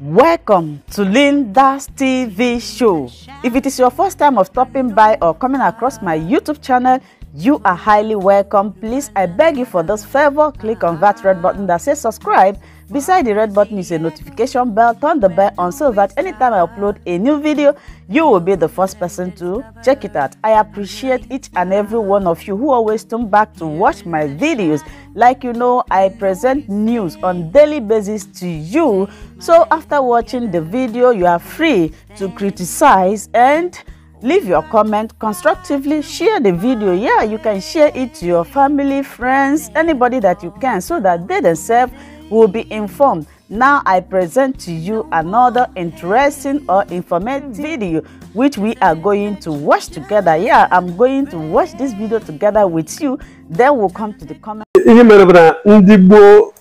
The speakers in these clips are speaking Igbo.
Welcome to Linda's TV show. If it is your first time of stopping by or coming across my YouTube channel, you are highly welcome. Please, I beg you for this favor, click on that red button that says subscribe Beside the red button is a notification bell. Turn the bell on so that anytime I upload a new video, you will be the first person to check it out. I appreciate each and every one of you who always turn back to watch my videos. Like you know, I present news on daily basis to you. So after watching the video, you are free to criticize and leave your comment constructively share the video yeah you can share it to your family friends anybody that you can so that they themselves will be informed. Now I present to you another interesting or informative video which we are going to watch together. Yeah, I'm going to watch this video together with you. Then we'll come to the comment. Ihe mere bụ na ndị gboo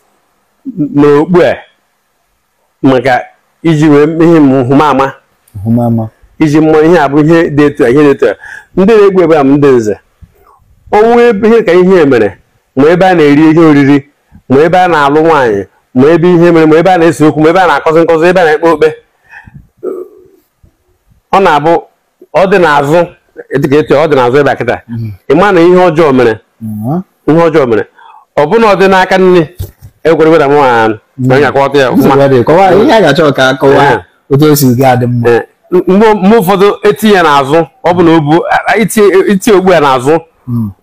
n'okpu a maka iji wee ihe nhụmama nhụmama iji mmụọ ihe abụ ihe dị etu a ihe dị etu a ndị na-egbu ebe a m ndị nze ọnwụ ihe ka ihe mere ma ebe a na-eri ihe oriri ma ebe a na-alụ nwaanyị ma ebe ihe mere ma ebe a na esi okwu ma ebe a na-akọzi nkọzi ebe a na-ekpe okpe ọ na-abụ ọ dị n'azụ dịka etu ọ dị n'azụ ebe a kịta ịma na ihe ọjọọ mere ihe ọjọọ mere ọ bụna ọ dị n'aka nne ekwere weda nwa anụ ma onye akọwata ya mgbe ụfọdụ etinye ya n'azụ ọ bụ na itinye okpu ya n'azụ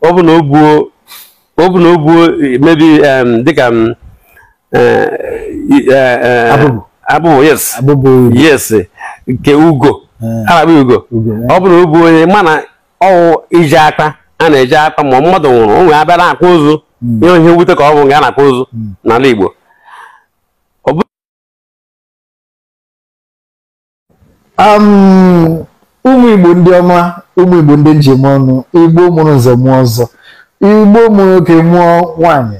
ọ bụ na o buo ọ bụ na o buo mebi dịka um, e, e, e, abụbụ yes yes nke ugo eh. arabi ugo eh. ọ bụ na o onye mana ọwụ iji aka a na-eji aka ma mmadụ nwụrụ onwe nwere abịa na-akpụ ụzụ hmm. ihe ihe nwute ka ọ bụ nga a na-akpụ ụzụ hmm. n'ala Igbo um, ụmụ Igbo ndị ọma ụmụ Igbo ndị njem ọnụ Igbo mụrụ nze mụọ ọzọ igbo ụmụ nwoke mụọ nwanyị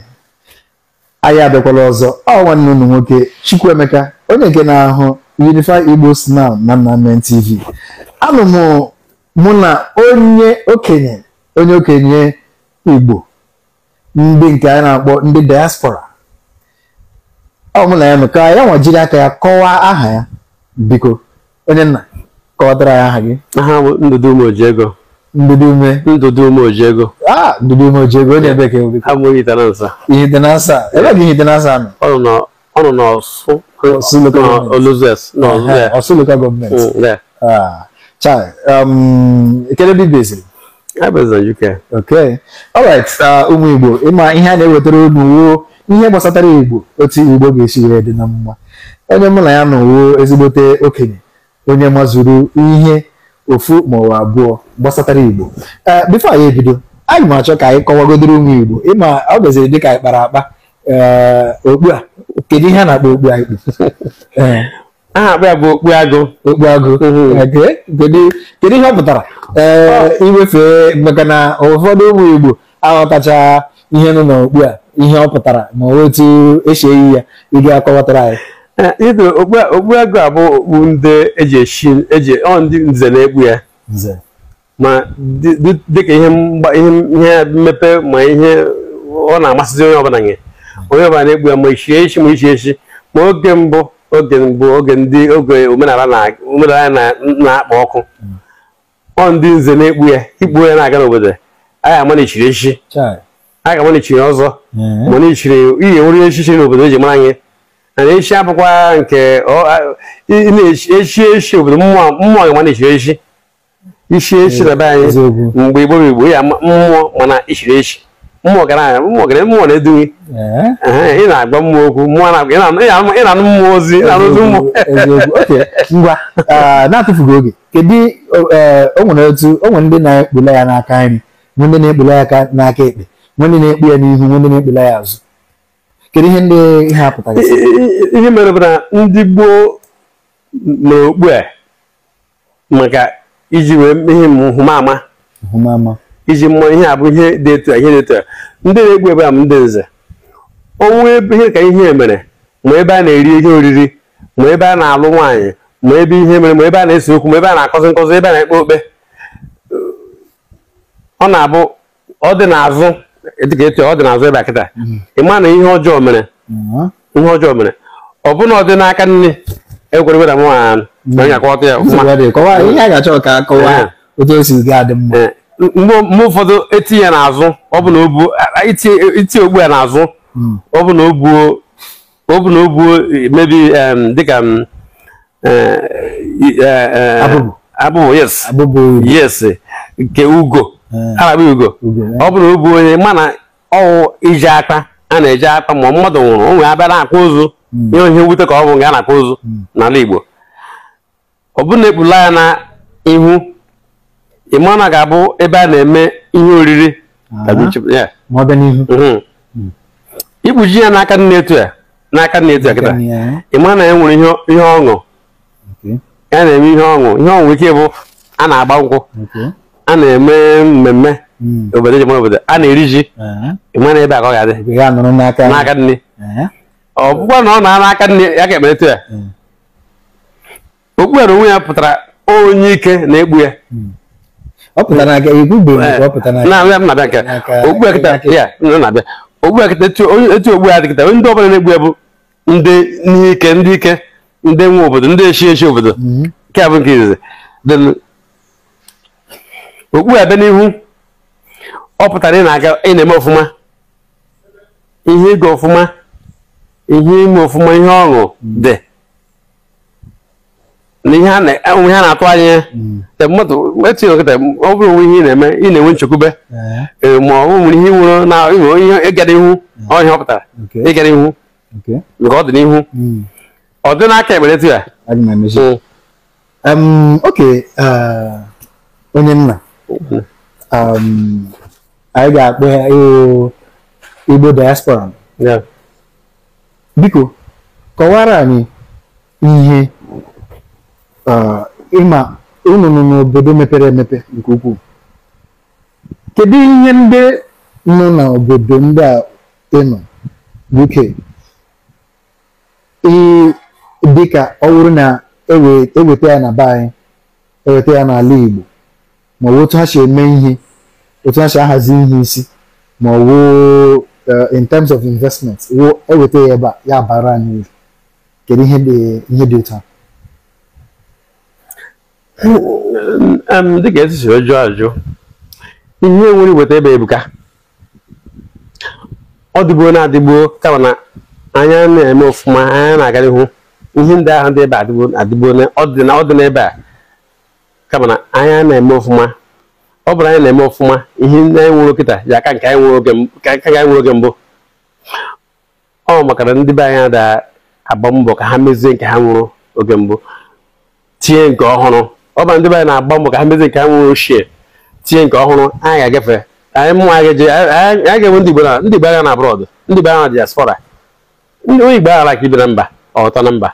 anyị abịakwala ọzọ ọ nwanne unu nwoke Chukwuemeka onye nke na-ahụ Unify Igbo Snap na Nnamdi TV anụ m mụ na onye okenye onye okenye igbo ndị nke anyị na-akpọ ndị diaspora ọ mụ na ya nọ ka ya nwa aka ya kọwaa aha ya biko onye nna kọwatara ya aha gị aha Ndụdụ Ndudume. Ndudume Ojego. Ah, Ndudume Ojego yeah. ni ebe ke obi. Amu yi tanansa. Yi tanansa. Ebe ke tanansa mi. Ọnụ na ọnụ na Ọsụ. Ọsụ local government. Oluzes. Na eh, Ọsụ there. Ọsụ local government. Mm, Ah. Chai, um, ikele bi bezi. I based na UK. Okay. All right, ụmụ uh, Igbo, ịma ihe a na-ewetara ụmụ wuo ihe gbasatara Igbo otu Igbo ga-esi wee dị na mma. Onye mụ na ya nọ wuo ezigbote okenye, onye mazuru ihe ofu maọbụ abụọ gbasatara igbo eh, bifo anyị ebido anyị m achọ ka anyị kọwagodoro ụmụ igbo ịma ọ gaziri dịka anyị kpara akpa eh, okpu a kedu ihe a na-akpọ okpu anyị kpu eh, aha akpa ya bụ okpu agụ okpu agụ mm-hmm. kedu ihe ọ pụtara oh. iwefe maka na ụfọdụ ụmụ igbo aghọtacha ihe nọ n'okpu a ihe ọ pụtara ma otu esi eyi ya ị ga-akọwatara anyị Eh, Ido ego abụ okpu ndị eji eshi eji ọ ndị nze na-ekpu ya ma dịka ihe ihe mmepe ma ihe ọ na-amasịzi onye ọbụla nye onye ọbụla na-ekpu ya ma ichie echi ma ichie echi ma oge mbụ oge mbụ oge ndị oge omenala na-akpa na ọkụ ọ ndị nze na-ekpu ya ikpu ya na-aga n'obodo anyị ga ama na echiri echi anyị ga ama na echiri ọzọ ma na ichiri iyi nwere echichi n'obodo eji mara anyị echi abụkwa nke echi echi obodo mmụọ ga na-echiri echi isi echi na be anyị mgbe igbo igbo ya mmụọ mana ichiri echi mmụọ gara anya mmụọ gara mmụọ na eh? ị na-agba mmụọ okwu mmụọ ị na-anụ mmụọ ozi na-arụzi mmụọ ngwa eh, na-atụfughị oge kedu eh, o nwere otu o nwere ndị na-ekpula ya n'aka nri nwee ndị na-ekpula ya n'aka ekpe nwee ndị na-ekpu ya n'ihu nwee ndị na-ekpula ya azụ kedu ihe ndị ihe apụtara ihe mere bụ na ndị gboo mere okpu a maka iji wee ihe nhụmama iji mmụọ ihe a bụ ihe dị etu a ihe dị etu a ndị na-egbu ebe a m ndị nze ọnwụ ebe ihe ka ihe mere ma ebe a na-eri ihe oriri ma ebe a na-alụ nwaanyị ma ebe ihe mere ma ebe a na-ese okwu ma ebe a na-akọzi nkọzi ebe a na-ekpe okpe ọ na-abụ ọ dị n'azụ dịka ọ dị n'azụ ịba kịta ị ma na ihe ọjọọ mere ihe ọjọọ mere ọ na ọ dị n'aka nne ekwerebera m nwaanyị anyị akọwata ya mgbe ụfọdụ etinye ya n'azụ itinye ogbu ya n'azụ ọ bụ na o buo e, mebi hmm. dịka e, e, abụbụ yes nke ugo araba ugo eh. ọ bụrụ obu onye mana ọwụ iji aka a na-eji aka ma mmadụ nwụrụ onwe abịa na-akpụ ụzụ hmm. ihe ihe nwute ka ọ bụ nga na-akpụ ụzụ hmm. n'ala Igbo ọ bụrụ na ekpula ya na ihu ịmana ga-abụ ebe a na-eme ihe oriri hmm. ikpuji ya n'aka nne etu ya n'aka nne etu ya kịta ịma na ya nwere ihe ọṅụ ya na-eme ihe ọṅụ ihe ọṅụ ike bụ a na-agba nkwụ a na-eme mmemme hmm. obodo ji obodo a na-eri ji ịma na ebe a ka ọ ga-adị n'aka nne ọ na ọ na n'aka nne ya ka emeretu ya hmm. okpukpere onwe ya pụtara onye ike na-egbu ya hmm. ogbukpekịta ogbu ya dịkịta ndị ọbụla na-egbu ya bụ ndị n'ike ndị ike ndị nwe obodo ndị eshi obodo a bụ okpu ebe n'ihu ọ pụtara ị na-aga ị na-eme ọfụma ihe ịga ọfụma ihe ime ọfụma ihe ọṅụ dị na ihe a na-atụ anya hmm. etinye nkịta ọ bụrụ onwe ihe ị na-eme ị na-enwe nchekwube ma ọ nwere ihe nwere na inwere ihe ịgara ihu ọhịa ọ pụtara ịgara ihu nke ọ dị n'ihu hmm. ọ dị n'aka ekpere tu ya hmm. onye nna anyị ga-akpọ ya Igbo diaspora biko kọwara anyị ihe uh, ịma n'obodo mepere emepe nke ukwuu kedu ihe ndị nọ n'obodo ndị a ịnọ UK dịka ọ bụrụ na eweta e ya na be anyị eweta ya n'ala Igbo ma ọ bụ otu ha si eme ihe otu ha si ahazi ihe isi ma ọ bụ eh, in terms of investment eweta ya ebe ya bara anyị uru kedu ihe dị otu a dịka sịrị jụọ ajụ ihe nwere iweta ebe ebuka ọ dịgbuo na-adịgbuo kama na anya na-eme ofuma anya na-agarihu ihe ndị ahụ dị ebe adịgbuo ọ dị n'ebe a kama na anya na-eme ọfụma ọ bụrụ anyị na-eme ọfụma ihe ndị anyị nwere kịta ya aka nke anyị nwere oge mbụ ọ maka na ndị be anyị na-agba mbọ ka ha mezie nke ha nwụrụ oge mbụ tinye nke ọhụrụ ọ bụrụ ndị be anyị na-agba mbọ ka ha mezie nke ha nwụrụ ochie tinye nke ọhụrụ anyị ga-agafe anyị mụnwa anyị ga-enwe ndị Igbo na ndị Igbo agha na abroad ndị Igbo agha na diaspora onye Igbo aghara ka ibe na mba ọtọ na mba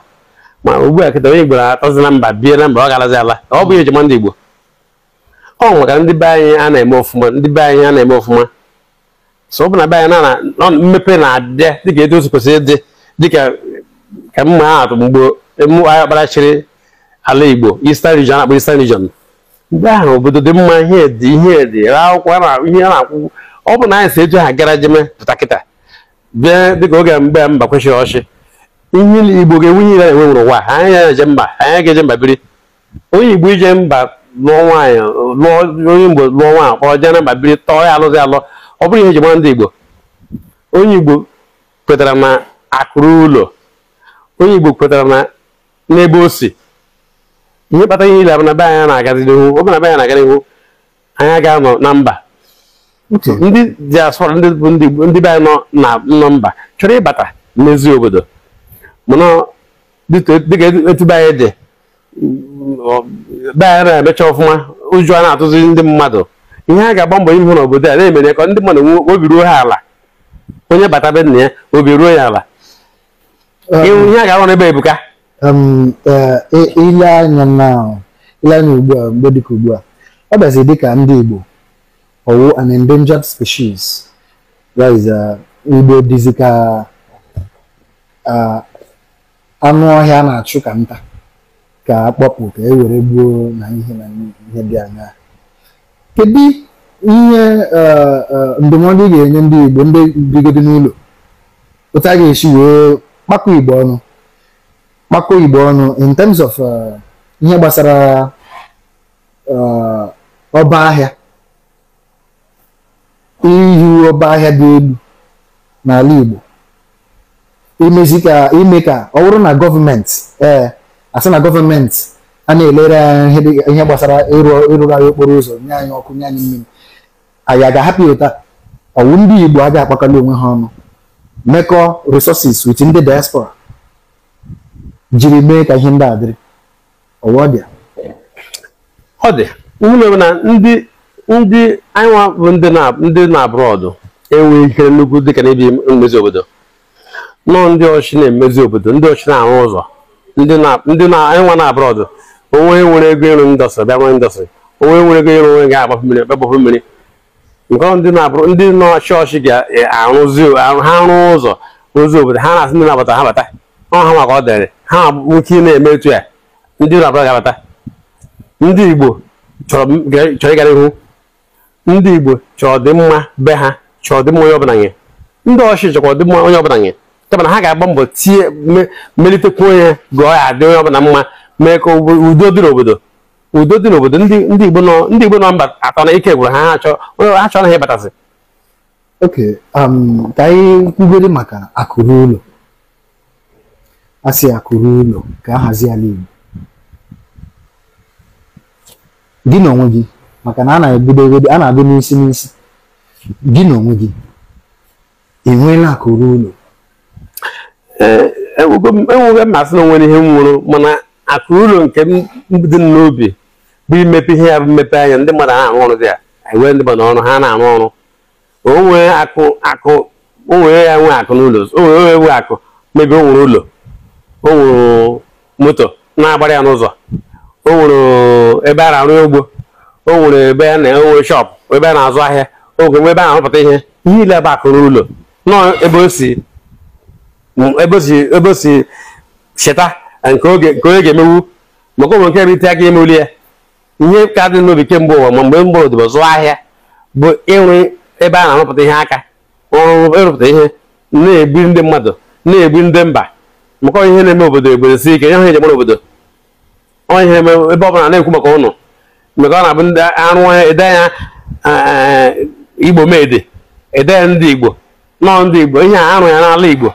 ma ugbu a kịta onye Igbo atọzi na mba bie na mba ọ garazi ala ọ bụ ejima ndị Igbo ọ ka ndị be anyị a na-eme ọfụma ndị be anyị a na-eme ọfụma so ọ bụ na be anyị na mmepe na-adịa dịka etu otu dị ịdị dịka ka mma ha atụ mgbe emume agha kparachiri ala Igbo Eastern region akpọ Eastern region ndị ahụ obodo dị mma ihe dị ihe dị ra akwụkwọ ihe a na-akwụ ọ bụ na anyị si etu ha gara jeme pụta kịta bịa dịka oge mgbe a mba kwesịrị ọchị ihe igbo ga-enwe ire enwe nwere ụwa anyị ga-eje mba anyị ga-eje mba biri onye igbo ije mba lụọ nwaanyị lụọ onye igbo lụọ nwaanyị kpọrọ jee na mba biri tọọ ya alụzi alụ ọ bụrụ ihe eji mara ndị igbo onye igbo kwetara na akụrụ ụlọ onye igbo kwetara na n'ebe o si ihe kpatara ihe ile na be anyị na-agazi n'ihu ọbụna be anyị na-aga n'ihu anyị ga-anọ na mba ndị asọrọ ndị bụ ndị be anyị nọ na mba chọrọ ịbata n'ezi obodo mana dịka e, e, etu be anyị dị be anyị na-emecha ọfụma ụjọ na-atụzi ndị mmadụ ihe a ga-agba mbọ ihu n'obodo a na-emere ka ndị mmadụ obi ruo ha ala onye bata be nna ya obi ruo ya ala um, ihe a ga-arụ n'ebe ebuka um, e, ile anya anya ugbu a mgbe dịka ugbu a ọ bịazi dịka ndị Igbo ọwụ an endangered species uh, igbo dịzika uh, anụ ọhịa na-achụ ka nta ka akpọpụ ka ewere were gbuo na ihe na ihe dị anya kedu ihe e, e, ndụmọdụ ị ga-enye ndị Igbo ndị bigodi n'ụlọ otu a ga-esi wee kpakọ Igbo ọnụ kpakọ Igbo ọnụ in terms of e, ihe gbasara ọba ahịa Iyi ọba ahịa dị elu n'ala Igbo imezi ka ime ka ọ bụrụ na gọọmenti ee asị na gọọmenti a na-elere ihe gbasara ịrụgharị okporo ụzọ nye anyị ọkụ nye anyị mmiri anyị a ga-ahapụ ụta ọwụ ndị Igbo a ga-akpakọla onwe ha ọnụ mekọ resources with ndị diaspora jiri mee ka ihe ndị a dịrị ọ dị ụmụ na ndị ndị anyịnwa bụ ndị na abroad enweghị ihe nnukwu dịka ebi mmezi obodo nọọ ndị ọchị na-emezi obodo ndị ọchị na-arụ ụzọ ndị na-enwe na abroad onwe nwere ego ịrụ ndọsị bịa nwere ndọsị onwe nwere ego ịrụ onwe ga-agbafu mmiri gbagbapụ mmiri nke ndị na-abụrụ ndị na-ọchị ọchị ga e, arụzi ha rụọ ụzọ rụzi obodo ha na-asị ndị na-abata ha bata ọ ha maka ọ dịrị ha nwoke na-eme etu ya ndị na-abụrụ ga-abata ndị igbo chọrọ ịgara ihu ndị igbo chọrọ mma be ha chọrọ mma onye ọbụla nye ndị ọchị chọkwa ọdịmma onye ọbụla nye ya mana ha ga-agba mbọ tie melitekwa onye gụọ ya adị onye ọbụla mma mee ka udo dị n'obodo udo dị n'obodo ndị igbo nọ ndị igbo nọ mba atọ na ike gwụrụ ha ha chọrọ ha ịbatasị oke ka anyị kwubere maka akụrụ ụlọ a sị akụrụ ụlọ ka a hazi ala igbo gị na onwe gị maka na a na-ebido ebedo a na-agụ n'isi n'isi gị na onwe gị enweela akụrụ ụlọ enwego eh, mmasị na onwere ihe m nwụrụ mana akụ ụlọ nke m dị n'obi bụ imepe ihe ya bụ mmepe anya ndị mmadụ na-arụ ọrụ dị ya enwere ndị mmadụ ọrụ ha na-arụ ọrụ onwere akụ akụ onwere ya nwee akụ n'ụlọ onwere nwe akụ mebe o nwere ụlọ o nwere moto na-agbara ya n'ụzọ o nwere ebe a na-arụ ugbo o nwere ebe a na-enwe shọpụ ebe a na-azụ ahịa o nwere ebe a na-arụpụta ihe ihe ile bụ akụ n'ụlọ nọọ ebe o si ebe o cheta nke onye ga-emewu maka ụmụ nke rite aka imeli ya ihe ka dị n'obi kemgbe ụwa ma mgbe mgbọrọdịbọ zụọ ahịa bụ ịrụ ebe a na-arụpụta ihe aka ọrụ ịrụpụta ihe na-egbu ndị mmadụ na-egbu ndị mba maka ihe na-eme obodo obodo si ike ihe eji obodo ihe ebe ọbụla na-ekwu maka ụnụ maka ọ na-abụ ndị arụ ede ya eh, igbo mede ede ya ndị igbo nọọ ndị igbo ihe a arụ ya n'ala igbo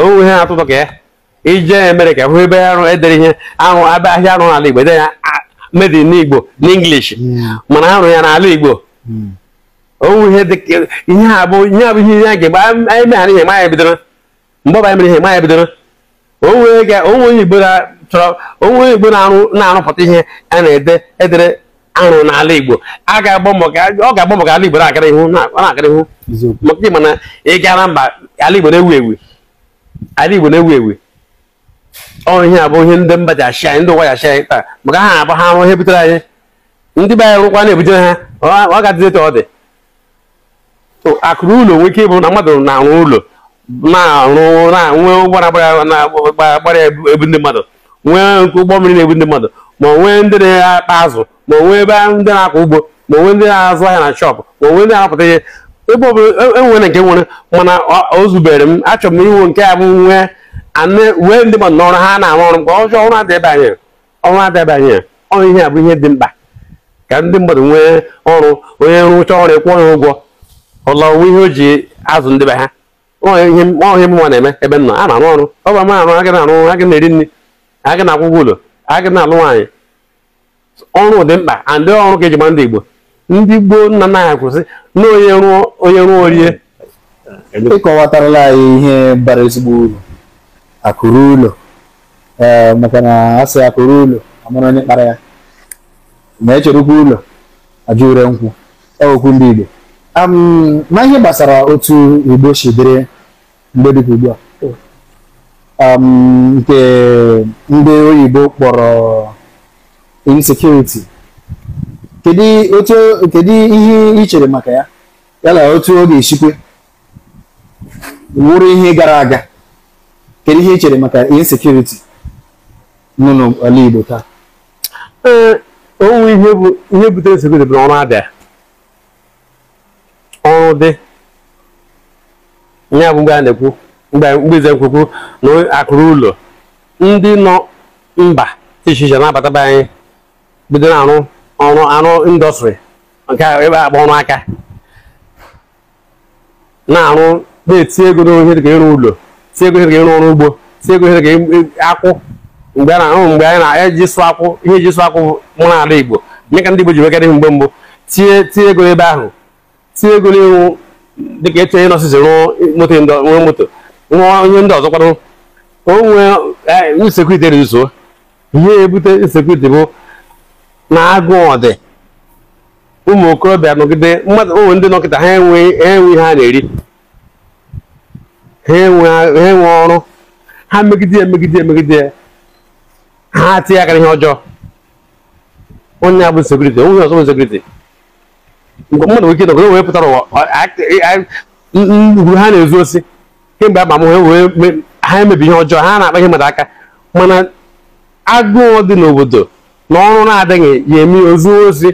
onwe ha atụtụ ka ya e, ije mere ka hụ ebe edere ihe ahụ abịa ahịa arụ n'ala Igbo ede ya made in Igbo n'English hmm. mana arụ ya n'ala Igbo hmm. onwe ihe ihe abụ ihe abụ ihe ya ga-egbe anyị meghara ihe ya bidoro mgbe ọbara mere ihe maya bidoro onwe Igbo chọrọ onwe Igbo na-arụpụta ihe a na-ede edere arụ n'ala Igbo ọ ga-agba mbọ ka ala Igbo na akara ihu maka ịma na ịgara mba ala Igbo na-ewu ewu ala igbo na-ewu ewu ihe a bụ ihe ndị mba ji achị anyị ndị ụwa ji achị anyị taa maka ha abụ ha arụ ihe butere anyị ndị be anyị rụkwa na-ebutere ha ọ ga adị etu ọ dị akụrụ ụlọ nwere ike ịbụ na mmadụ na-arụ ụlọ na-arụ na-enwe ụgbọ na-agbara ebu ndị mmadụ nwee ụgbọ mmiri na-ebu ndị mmadụ ma onwee ndị na-akpa azụ ma onwe ebe ndị na-akọ ugbo ma onwe ndị na-azụ ahịa na shọpụ ma nwee ndị na ihe ebe ọ bụla enwere e nke nwere mana o zubere m achọrọ m inwe nke a bụ nwee anụ wee ndị mmadụ n'ọrụ ha na-arụ ọrụ mgbe ọjọọ ọrụ adịbanye ọrụ adịbanye ọrụ ihe a bụ ihe dị mkpa ka ndị mmadụ nwee ọrụ onye rụcha ọrụ ịkwụ ya ụgwọ ọla onwe ihe o ji azụ ndị be ha ihe mụnwa na-eme ebe nọ a na-arụ ọrụ ọ ba m arụ agaghị arụ ọrụ agaghị na-eri nri agaghị na agwụgwọ ụlọ agị na-alụ nwaanyị ọrụ dị mkpa ndị ọrụ ka eji ma ndị Igbo ndị gboo nna na ya kwụsị na onye ruo orie ịkọwatarala anyị ihe bara ezigbo uru akụrụ ụlọ maka na a akụrụ ụlọ amara onye kpara ya ma echerekwa ụlọ ajụ nkwụ okwu e ndị Igbo ma ihe gbasara otu Igbo si dịrị mgbe dị ugbu a nke ndị oyibo kpọrọ insecurity kedu ihe ị chere maka ya ya na otu ọ ga-esikwe wụrụ ihe gara aga kedu ihe ị chere maka insekuriti nọ n'ala Igbo taa ee onwe ihe butere insekuriti bụ ọrụ abịa ọrụ dị ya bụ mgbe a na-ekwu mgbe ize na akụrụ ụlọ ndị nọ mba iche n'abata na-abata anyị bido na-arụ ọrụ anụ indọstrị nke ebe akpọ ọrụ aka na-arụ na-eti ego n'ohere ka ịrụ ụlọ tie ego ohere ka ịrụ ọrụ ugbo tie ego ohere ka akwụ mgbe anyị na-eji sụ akwụ ihe eji sụ akwụ mụ na ala igbo mee ka ndị igbo ji nwekere ihe mgbe mbụ tie tie ego ebe ahụ tie ego n'ịrụ dịka eche onye nọsịsị rụọ moto rụọ onye ndị ọzọ kwadoro ka o nwee e, nsekwu ite na ihe ebute nsekwu ite bụ na agụụ ọdị ụmụ okorobịa nọgide mmadụ ụmụ ndị nọkịta ha enweghị enwe ihe ha na-eri ha enwe ọrụ ha megide ya megide ya megide ya ha tinye aka ihe ọjọọ onye abụ sekuriti onye ọzọ bụ sekuriti mmadụ nwere ike nọgide wee pụtara ụwa ugwu ha na-ezu osi kemgbe ama m ha emebi ihe ọjọọ ha na-akpa ihe mmadụ aka mana agụụ dị n'obodo n'ọrụ na-adịghị ya eme ozu ozi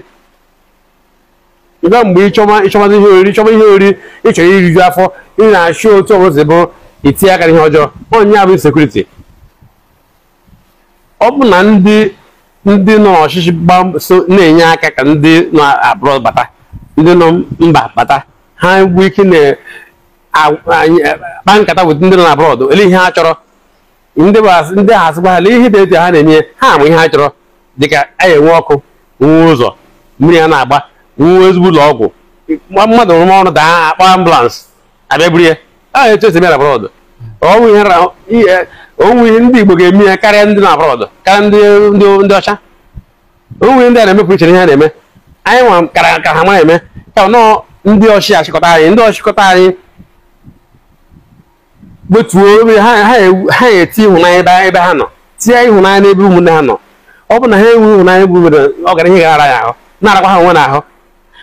ịba mgbe ịchọma ihe oriri ịchọma ihe oriri ịchọrọ iriju afọ ị na-achụ otu ọbụla bụ itinye aka n'ihe ọjọọ onye bụ sekuriti ọ bụ na ndị ndị nọ n'ọchịchị so na-enye aka ka ndị nọ abụrọ bata ndị nọ mba bata ha bụ ike na-akpa nkata weta ndị nọ na abụrọdụ ele ihe ha chọrọ ndị ahụ asịgba ha lee ihe dị etu ha na-enye ha amụ ihe ha chọrọ dịka anyị e enwe ọkụ nwee ụzọ mmiri ya na-agba nwee ezigbo ụlọ ọgwụ mmadụ ọrụ daa akpa ambulans abịa buru ya a echesi bịa na brọdụ onwe ihe ndị Igbo ga-eme ya karịa ndị na brọdụ karịa ndị ọcha onwe ndị a na-emepụ iche ihe a na-eme anyị nwa kara ka ha ma eme ka nọọ ndị ọchị achịkọta anyị ndị ọchịkọta anyị gbetuo ha eti ịhụnanya ebe ha nọ tinye ịhụnanya n'ebe ụmụnne ha nọ ọ bụ na ha enweghị ụnanya bụ nwere ọgara ihe gara ya ahụ na-arakwa ha onwe na ahụ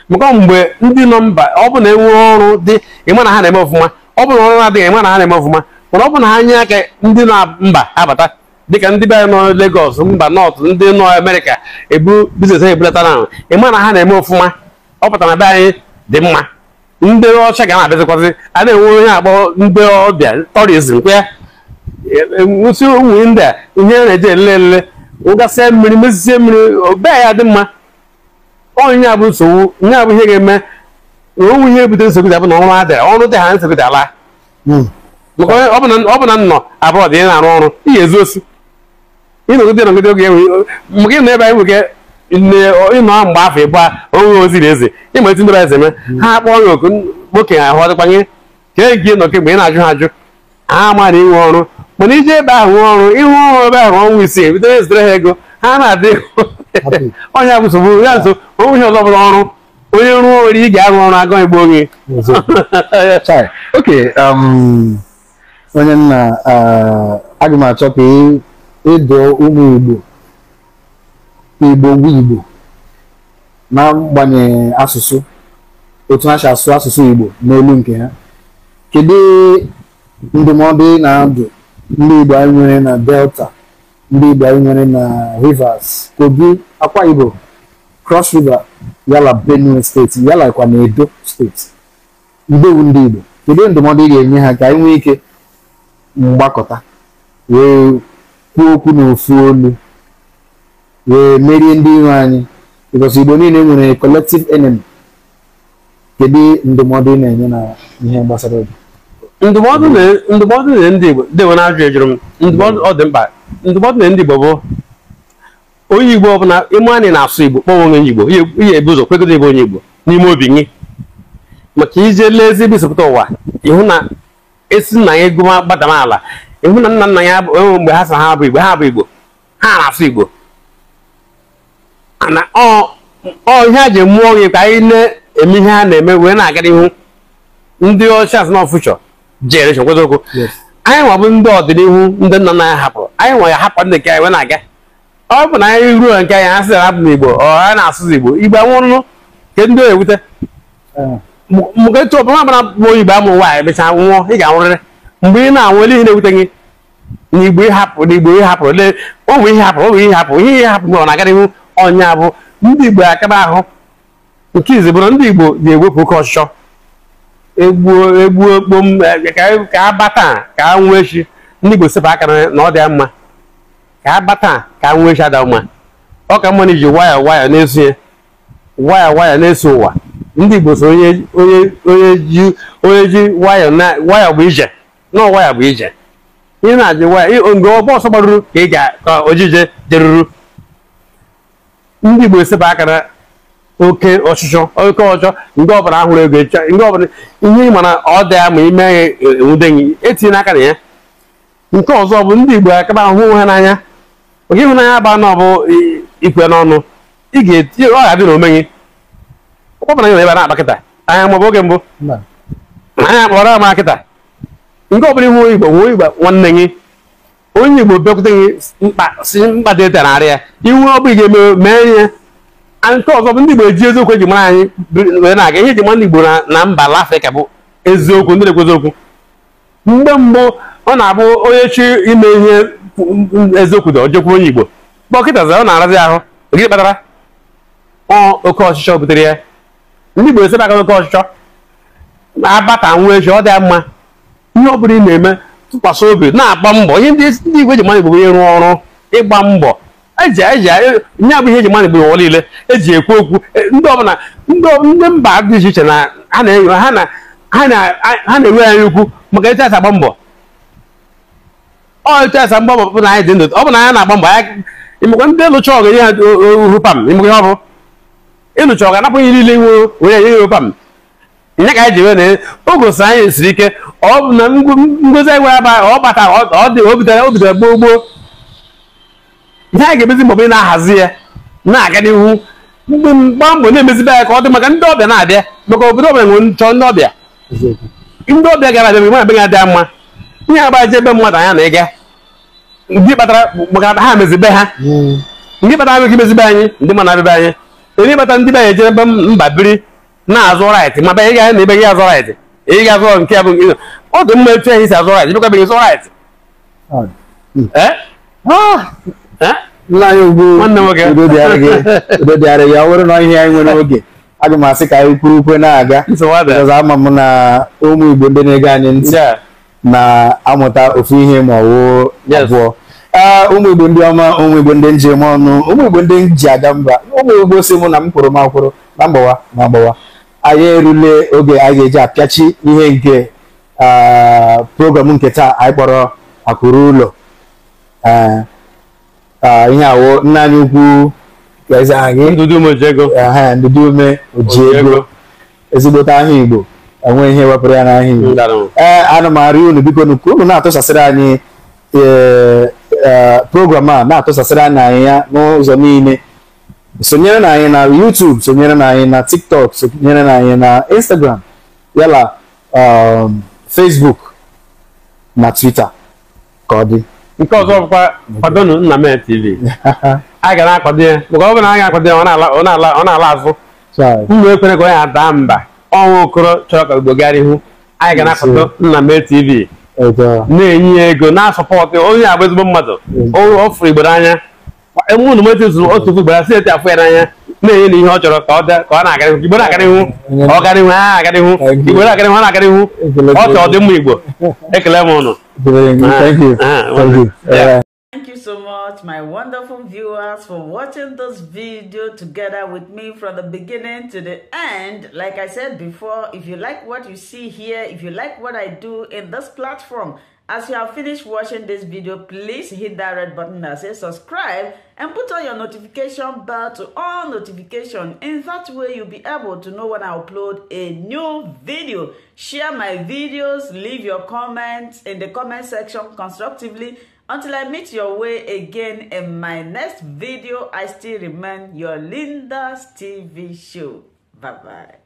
maka mgbe ndị nọ mba ọ bụ na enwe ọrụ dị ịma na ha na-eme ọfụma ọ bụ na ọrụ na-adịghị ịma na ha na-eme ọfụma mana ọ bụ na ha nye aka ndị nọ mba abata dịka ndị bịa nọ legos mba nọt ndị nọ Amerịka ebu biznes ha ebulata na ịma na ha na-eme ọfụma ọ pụtara na be anyị dị mma ndị ọcha ga na-abịazikwazị a na-enwe onye akpọ ndị ọbịa tọrizm kwe e, e, ụmụ ndị a ihe a na-eji elele wụgasịa mmiri mezie mmiri obee ya dị mma onye bụ nsogbu nye abụ ihe ga-eme na onwe ihe ebute nsogbu dị abụ na ọrụ adịra ọrụ dị ha nsogbu dị ala maka ọ bụ na nnọ abụọ dị na-arụ ọrụ ihe ezu osu ịnọgide nọgide oge enwe ị nọ ebe anyị nwere ịnọ mgbe afọ ịbụ onwe na eze ịma etu ndebe eze mee ha akpọọ ya oku okenye ahụ ọdịkwanye ka e gị nọ kemgbe ị na-ajụ ha ajụ ha ama na inwe ọrụ mana iji ebe ahụ ọrụ ịhụ ọrụ ebe ahụ ọnwụ isii ebido ezitere ha ego ha na-adị onye bụ nsogbu ya nso onwe ọzọ bụrụ ọrụ onye rụọ nwere ị ga-arụ ọrụ agụ igbo onye um, onye nna uh, aga m achọ ka ịdụ ụmụ igbo igbo ngwa igbo na-agbanyeghị asụsụ otu ha si asụ asụsụ igbo n'elu nke ha kedu ndụmọdụ na-adụ ndị Igbo anyị nwere na Delta ndị Igbo anyị nwere na Rivers Kogi Akwa Igbo Cross River yala Benue steeti yala kwa na Edo steeti ndewu ndị Igbo kedu ndụmọdụ ị ga-enye ha ka anyị nwee ike mgbakọta wee kwuo okwu n'ofu olu wee merie ndị iro anyị because Igbo niile nwere collective enemy kedu ndụmọdụ ị na-enye na ihe gbasara obi ndụmọdụ ndụmọdụ na ndị Igbo ndị Igbo na-ajụ ejụrụ m ndụmọdụ ọ dị mkpa ndụmọdụ na ndị Igbo bụ onye Igbo ọbụla ịma anyị na-asụ Igbo kpọwa onye Igbo ihe ebu ụzọ kwegodo ebe onye Igbo n'ime obi gị maka ije lee ezigbo ụwa ịhụ na esi nna ya gụma gbadama ala ịhụ na nna nna ya enwe mgbe ha sa ha bụ Igbo ha bụ Igbo ha na-asụ Igbo na ọ ihe a ji mụọ gị ka anyị na-eme ihe ha na-eme wee na-aga n'ihu ndị ọcha asị na generation kwezokwu anyị nwa bụ ndị ọdịnihu ndị nna nna ya hapụrụ anyị nwa ya hapụ ndị nke anyị na-aga ọ bụ na anyị ruo nke anyị ha sị hapụ n'igbo ọ ha na-asụ igbo igbo anwụrụ nke ndị ewute eh. mgbe etu ọbụla ọbụla bụ igbo amụrụ nwaanyị mechaa nwụọ ị ga-anwụrịrị mgbe ị na-anwụ ele ihe na-ewute gị n'igbo ịhapụ igbo ịhapụrụ lee onwe bụ ihe hapụrụ onwe bụ ihe hapụ ihe ihe hapụ mgbe ọ na-aga n'ihu ọnya bụ ndị igbo akaba ahụ nke izi bụrụ ndị igbo ga-ewepụ oke ọchịchọ egbuo egbuo kpom eh, ka a bata ka a echi ndị Igbo sepụ aka na ọ dị mma ka a bata ka a nwee echi ada mma ọ ka mma na iji waya waya na-eso ya waya waya na-eso ụwa ndị Igbo so onye onye ji onye ji waya bụ ije na waya bụ ije ị na-ajụ waya mgbe ọgbọ ọsọ gbaruru ka ị ga ka ojije jeruru ndị Igbo sepụ aka na oke ọchịchọ oke ọchọ ndị ọbụla ahụrụ ego ndị ọbụla ihe ị ma ọ dị ya ma ime ya enwude e, gị etinye n'aka na ya nke ọzọ bụ ndị igbo akaba ahụ onwe ha n'anya oge ịhụnanya ba na ọbụ e, ikwe n'ọnụ ị ga-etinye ọ ga-adị na omenye ọkpọbara nyere ebe a na-akpa kịta anya maọbụ oge mbụ anya kpọrọ ama kịta nke ọbụla ihu igbo nwe igbo nwanne gị onye igbo bekwute gị mkpa si mkpa dị ete narị ya iwu ọ bụ ga-eme mee ihe nke ọzọ bụ ndị Igbo eji eziokwu eji mara anyị wee na-aga ihe eji mara ndị Igbo na mba ala Afrịka bụ eziokwu ndị na-ekwu eziokwu mgbe mbụ ọ na-abụ onye chi ime ihe eziokwu dị ọjọkwu onye Igbo dọkịta zara ọ na-arazi ahụ gịnị kpatara oke ọchịchọ butere ya ndị Igbo esebe aka oke ọchịchọ na-abata nwa echi ọ dị mma ihe ọ bụla ị na-eme tụkwasị obi na-agba mbọ ihe ndị Igbo eji mara Igbo onye rụọ ọrụ ịgba mbọ eji eji nye bụ ihe eji mmadụ gburu ọla ile eji ekwu okwu e, ndị ọbụla ndị mba dị iche iche na ha na-enwe anyị ukwu maka etu asa agba mbọ ọ etu asa mgbọ bụ na anyị dị ndụ ọ bụ na anyị na-agba mbọ ịmekwa ndị lụcha ọgụ ihe ohu pam ịmekwa ihe ọ bụ ịlụcha ọgụ anapụghị niile nwe onye enye ihe pam nye ka anyị ji wee na o gosi anyị siri ike ọ bụ na ngozi anyị nwere aba ọ batara ọ dị o bidoro gboo gboo ihe a ga-emezi mgbe na-ahazi ya na-aga n'ihu mgba mbọ na-emezibe ya ka ọ dị maka ndị ọbịa na-abịa maka obodo ọbịa nwere nchọ ndị ọbịa ndị ọbịa gara abịa ga-adị abịa adịa mma ihe agbaje ebe mmadụ anya na-ega ndị kpatara maka ha mezibe ha ndị kpatara mezibe anyị ndị mmadụ abịa anyị ndị kpatara ndị be ejere ebe mba biri na-azụ ma ebe ị na ebe gị azụ raịtị mma etu ehi si azụ raịtị bịakwa nna anyị ugbo dịara ya ọ bụrụ na ihe anyị nwere oge aga m asị ka anyị kwuru ukwe na-aga ama m na ụmụ igbo ndị na-ege anyị ntị na-amụta ofu ihe ma ọwụ abụọ ah, ụmụ igbo ndị ọma ụmụ igbo ndị njem ọnụ ụmụ igbo ndị ji aga mba ụmụ igbo si mụ na m kwụrụ m akwụrụ na mgbawa na mgbawa anyị erule oge anyị ga-eji apịachi ihe nke ah, program nke taa anyị kpọrọ akụrụ ụlọ ah, ihe awo nna anyị ukwu ndụdụ ume oji ego ezigbote ahịa igbo enwe ihe wepụrụ ya n'ahịa igbo ee ana unu biko nuku unu na-atụsasịrị anyị e, e, program a na-atụsasịrị anyị anyị ya n'ụzọ niile sonyere na anyị na YouTube sonyere na anyị na TikTok sonyere na anyị na Instagram yala um, Facebook na Twitter ka ọ dị nke ọzọ bụkwa kwadonu Nnamdi TV a ga na-akwado ya maka ọ bụrụ na a ga-akwado ya ọ na-ala azụ mma ekwere ka ọ ya ada mba ọnwa okoro chọrọ ka Igbo gara ihu anyị ga na-akwado Nnamdi TV na-enye ya ego na-asọpọtụ onye agba ezigbo mmadụ ọ fụrụ Igbo n'anya ụnụ metụ zụrụ otu ugboro asị eti afọ ya n'anya na-enye ihe ọ chọrọ ka ọ na-akarịhụ igbo na-akarịhụ ọ karịhụ ha akarịhụ igbo na-akarịhụ ọ na-akarịhụ ọ ka ọ dị mma igbo ekele m ụnụ Thank you so much, my wonderful viewers, for watching this video together with me from the beginning to the end. Like I said before, if you like what you see here, if you like what I do in this platform, As you have finished watching this video, please hit that red button that says subscribe and put on your notification bell to all notification. In that way, you'll be able to know when I upload a new video. Share my videos, leave your comments in the comment section constructively. Until I meet your way again in my next video, I still remain your Linda's TV show. Bye-bye.